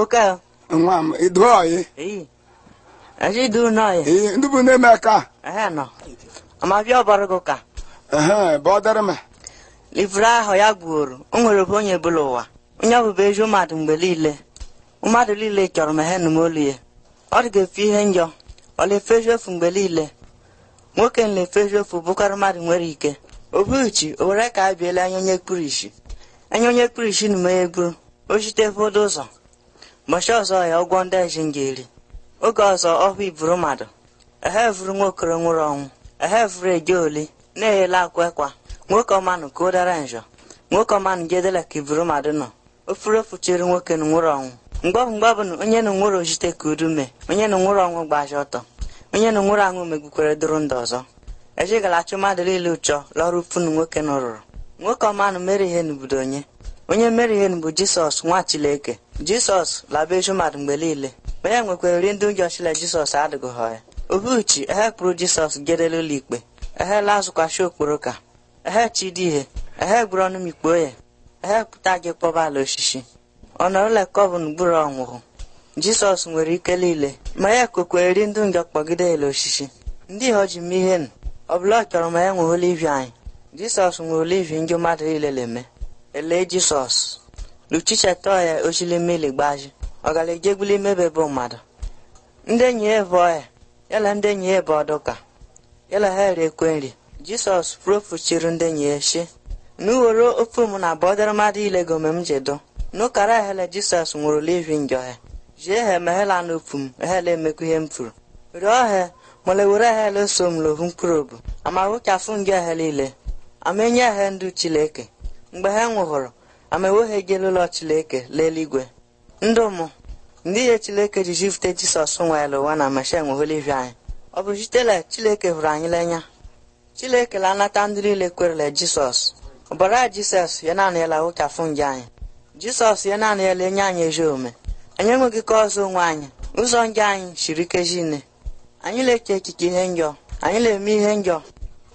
Oka. Nwa m, idu oyi. Ee. Aji idu n'oyi. Ee, ndị bụ na-eme ka. Ehe nọ. Ama bịa ọbara gị ụka. Ehe, bụ ọdịrị m. Livra ahụ ya gwuoro, o nwere bụ onye bụla ụwa. Onye ọ bụbụ ezi mmadụ mgbe niile. Mmadụ niile chọrọ m ehe nụ m olu ya. Ọ dị ga-efu ihe njọ. Ọ na-efezu efu mgbe niile. Nwoke na efe efu bụkarị mmadụ nwere ike. Obuchi, o were ka a biela anya onye kpuru isi. Anya onye kpuru isi na m egburu. O ụfọdụ ụzọ. machi ọzọ ya ụgwọ ndị eji ga-eri oge ọzọ ọhụ iburu mmadụ ehe ehevuru nwokoro nwụrụ ọnwụ ehevuru eje oli na-eghele akwa ekwa nwoke ọmanụ ka ụdara njọ nwoke ọmanụ jedela ka iburu mmadụ nọ ofuru ofuchiri nwoke na nwụrụ ọnwụ mgbọbụ mgbọbụ na onye na nwụrụ ojite ka udu mee onye na nwụrụ ọnwụ gbaji ọtọ onye na nwụrụ anwụ megbukwere dụrụ ndụ ọzọ ejigala achụ mmadụ niile ụchọ lọrụ funu nwoke nụrụrụ nwoke ọmanụ mere ihe n'obodo onye onye mere ihe bụ jisọs nwa chileke jisọs laba eju mmadụ mgbe niile Onye nwekwara nri ndị ụjọ chile jisọs adịghị ha ya obuchi kpụrụ jisọs gedele ụlọ ikpe ehela okporo okporoka ehe chidi ihe ehe gburu ọnụ mikpuo ya ehe pụta gị kpọba ala osisi ọnọrụlekọbụn gburu ọnwụhụ jisọs nwere ike niile ma ya kokweri ndụ njọ kpọgide ele osisi ndị ha ji mee ihe ọbụla ọ chọrọ ma ya nwe olivi anyị jisọs nwere olivi ndị mmadụ niile na-eme ele Jizọs luchichetoya ochilimili gbaji ọgalajegbuli imebe bụ mmadụ ndị enyi ya bụ ọya yala ndị enyi ya bụ ọdụka yala ha ekwe nri jisọs propuchiri ndị enyi ya shi n'ughoro ofe m na bọdara mmadụ ilego mgbe m jedo n'ụkara ehele Jisọs nwụrụ livi njọ ya jie ha meghela n'ofu m ehele emekwu ihe m furu rịọ ha mole were ehele so m lohu mkpụrụ obu ama wuchafu ngị ehele ile ama enye ehe ndụ Chileke mgbe ha nwụhụrụ ama eweghegịla ụlọ chileke leeligwe ndị ụmụ ndị ihe chileke ji jifute jisọs nwere ụwa na masha nwehụla ivi anyị ọ bụ jitela chileke hụrụ anyị lenya chileke la anata ndị niile kwerele jisọs ọbara jisọs ya naanị ya lawụchafụ nje anyị jisọs ya naanị ya enye anyị ezi ome. anyị enweghị ka ọzọ onwe anyị ụzọ nje anyị shiri ike nne. anyị na-eche ekike ihe njọ anyị na-eme ihe njọ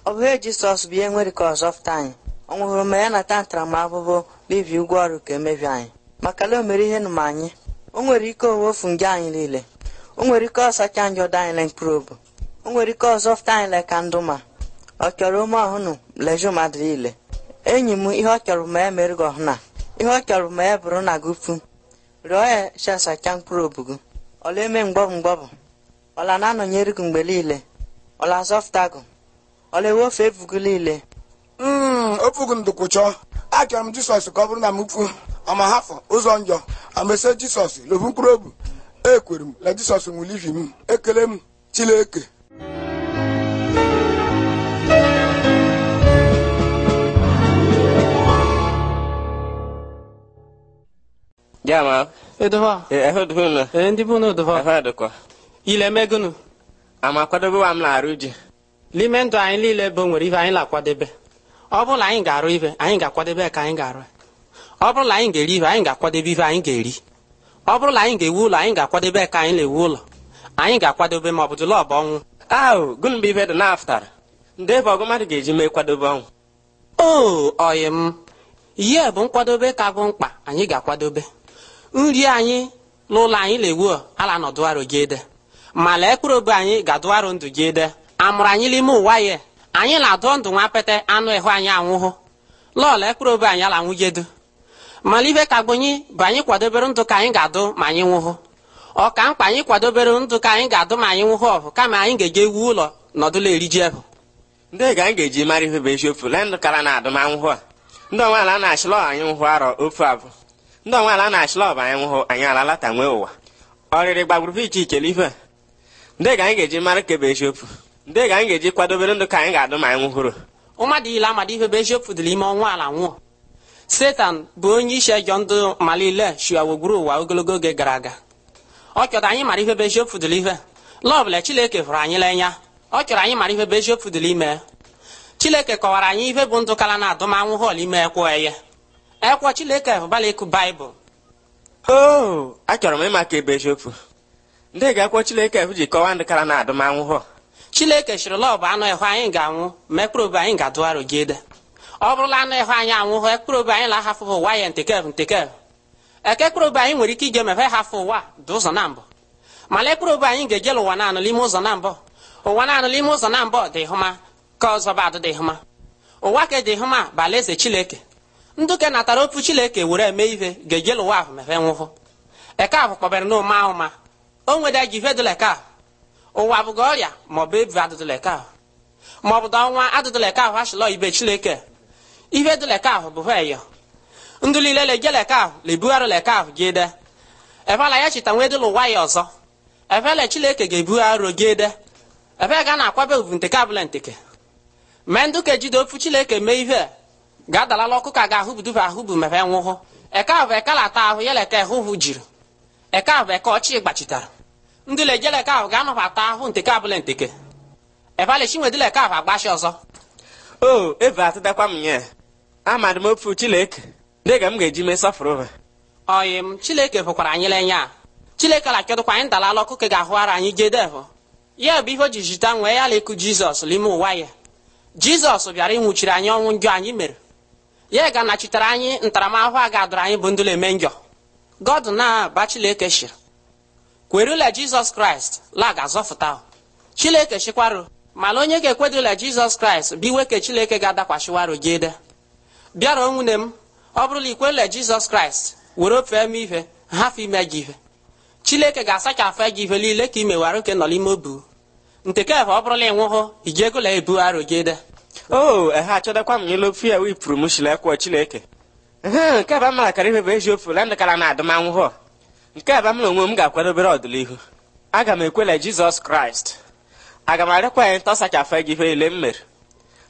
ọ bụ ihe jisọs bụ ihe nwere ka ọzọ fụta anyị ọ nwụhụrụ ma ya nata ntaramahụhụ n'ibi ụgwọ ọrụ ka emebi anyị maka na o mere ihe m anyị o nwere ike owefu nje anyị niile o nwere ike ọsacha anyị ọdọ anyị mkpụrụ o nwere ike ọzọ fụta anyị leka ndụ ma ọ chọrọ ume ọhụnụ lejụ mmadụ niile enyi m ihe ọ chọrọ ma ya mere gị ọhụna ihe ọ chọrọ ma ya bụrụ na gị pụ rịọ ya chesacha mkpụrụ obu gị ọla eme mgbọbụ mgbọbụ ọla na-anọnyere gị mgbe niile ọla azọfụta gị ọla ewefu ebu gị niile Hmm, ofugo m dukwuchọ achọrọ m jisọs ka ọ bụrụ na m fu ọma ụzọ njọ amese jisọs lobu mkpụrụ obi ekwere m na jisọs nwụrụ ihi m ekele m chileke Jamaa. Edova. Ehe eh, odovunu. Ee eh, ndị bụ na Edova. Efe Ile emegunu. Ama akwadobe wa m na-arụ ji. N'ime ndụ anyị niile bụ nwere ihe anyị na-akwadebe. ọ bụrụ na anyị ga-arụ ife anyị ga-akwadebe ka anyị ga-arụ ọ bụrụ na anyị ga-eri ife anyị ga-akwadebe ife anyị ga-eri ọ bụrụ na anyị ga-ewu ụlọ anyị ga-akwadebe ka anyị na-ewu ụlọ anyị ga-akwadebe ma ọ bụ jụlọbụ ọnwụ ahụ gụnụ mgbe ife dị naftara ndị ebe ọgụ mmadụ ga-eji mee kwadobe ọnwụ o oh, oyi m ihe bụ nkwadobe ka bụ mkpa anyị ga-akwadobe nri anyị n'ụlọ anyị na-ewu ala nọdụarụ gị ede ma lee mkpụrụ obe anyị ga-adụarụ ndụ gị ede amụrụ anyị n'ime ụwa ya anyị na-adọ ndụ nwa pete anụ ịhụ anyị anwụhụ lọọlụ ekpụrụ obe anyị ala nwụjedu mana ibe ka gbonyi bụ anyị kwadobere ndụ ka anyị ga-adụ ma anyị nwụhụ ọka mkpa anyị kwadobere ndụ ka anyị ga-adụ ma anyị nwụhụ ọbụ kama anyị ga eji ewu ụlọ nọdụla eriji ebụ ndị ga anyị ga-eji mara ihe bụ eziokwu lee ndụ kara na adụ ma nwụhụ a ndị onweala na-achịlọ anyị nwụhụ arọ ofu abụ ndị onweala na-achịlọ ọbụ anyị nwụhụ anyị alalata nwee ụwa ọrịrị gbagburu iche iche n'ife ndị ga anyị ga-eji mara kebe eziokwu ndị ga anyị ga-eji kwadobere ndụ ka anyị ga-adụ ma anyị nwụhụrụ ụmadịile amada ihe bụ eziokwu dị ime ọnwa ala nwụọ setan bụ onye isi ejọ ndụ malile shiawogburu ụwa ogologo oge gara aga ọ chọrọ anyị mara ihe bụ eziokwu dịrị ihe lọbụla chileke hụrụ anyị n'anya ọ chọrọ anyị mara ihe bụ eziokwu dịrị ime chileke kọwara anyị ihe bụ ndụ kara na anwụhụ họl ime ekwo eye ekwo chineke hụbala ịkụ baịbụl oh, achọrọ m ịma ebe eziokwu ndị ga-ekwo chineke ji kọwaa ndụ kara na adụmanwụ họl chineke chịrị la bụ anụ ịhụ anyị ga-anwụ ma ekpere anyị ga-adụgharụ gị ọ bụrụla anụ ịhụ anyị anwụ hụ obi anyị lahafụbụ ụwa ya ntekev ntekev eke ekpere anyị nwere ike ige mefe hafụ ụwa dị ụzọ na mbụ mana ekpere anyị ga-ejela ụwa naanụ n'ime ụzọ na mbụ ụwa naanụ n'ime ụzọ na mbụ dị hụma ka ọzọ ba dị hụma ụwa ka dị hụma bụ eze chineke nduke natara opu chineke were eme ihe ga-ejela ụwa ahụ mefe nwụhụ eke ahụ kpọbere n'ụma ahụma o nweda ji eke ụwa abụghị ọrịa maọbụ ebu adụdụleka ahụ maọbụ da ọnwa adụdụleka ahụ achịlọ ibe chineke ihe dụleka ahụ bụ hweyo ndụ niile leje ahụ lebugharị ahụ gị de ebela ya chita nwee dịla ụwa ya ọzọ ebele chineke ga-ebugharị gị de ebe ga na-akwabe ovu nteke abụla nteke mee ndụ ka ejide ofu chineke mee ihe ga-adalala ọkụ ka ga-ahụ buduba ahụ bụ mebe nwụhụ eke ahụ eke lata ahụ ya leka jiri eke ahụ eke ọchị gbachitara ndị lejeleka ahụ ga-anọbata ahụ nteke abụla nteke ebalchinwedileka ahụ agbachi ọzọ o eve atịdakwa m ya amadị m ofu chileke dịga m ga-eji mee sọfụrụ oyi m chileke fụkwara anyị lenye a chileke la kedụkwa anyị dalala ọkụkọ ga-ahụ ara anyị jee jedevụ ya bụ ihe o ji jita nwee ya lekụ jizọs n'ime ụwa ya jizọs bịara ịnwụchiri anyị ọnwụ njọ anyị mere ya ga-anachitere anyị ntaramahụhụ a ga adụrụ anyị bụ ndụla eme njọ god na-aba chileke shiri kwerula jizọs kraịst laga ga-azọfụta chineke chịkwarụ mana onye ga-ekwedola jizọs kraịst biwe ke chineke ga-adakwashiwarụ gị ede bịara nwunye m ọ bụrụla ikwerula jizọs kraịst were ofee m ihe hafụ ime gị ihe chineke ga-asachafụ gị ihe niile ka i mewarụ ke nọ n'ime obu nke kebụ ọ bụrụla ịnwụhụ iji egola ebu arụ gị ede o ehe achọdakwa m ilu fiya wipụrụ m shilekwo chineke ihe bụ na na adụmanwụhụ nke a bụ m na onwe m ga-akwadobere ọdịnihu aga m ekwele jizọs kraịst aga m arịkwa ya ntọsachafe gị ihe niile m mere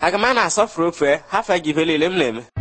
aga m a na-asọfuru ofe hafe gị ihe niile m na-eme